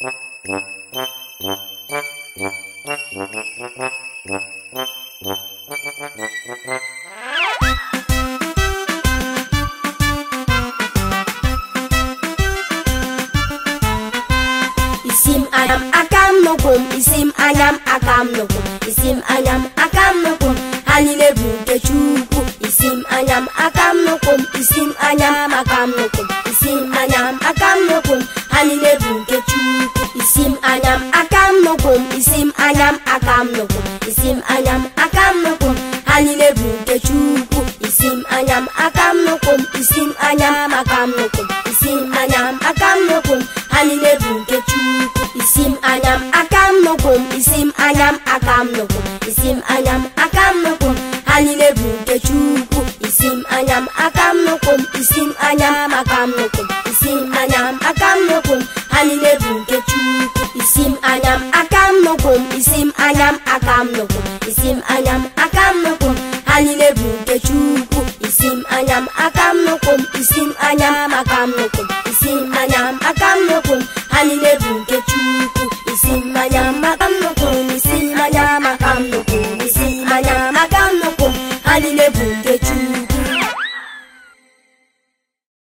Isim anyam akam nukum, isim anyam akam nukum, isim anyam akam nukum, halile bunke chuku, isim anyam akam nukum, isim anyam akam nukum, isim cukup Isim anyam akam nukum Isim anyam akam nukum Isim anyam akam nukum Haline bunte cukup Isim anyam akam nukum Isim anyam akam nukum Isim anyam akam nukum Haline bunte cukup Isim anyam akam nukum Isim anyam akam nukum Isim anyam akam nukum Haline bunte cukup Isim anyam akam nukum Isim anyam akam nukum nukum isim anyam akam nukum isim anyam akam nukum haline bunke chuku. isim anyam akam nukum isim anyam akam nukum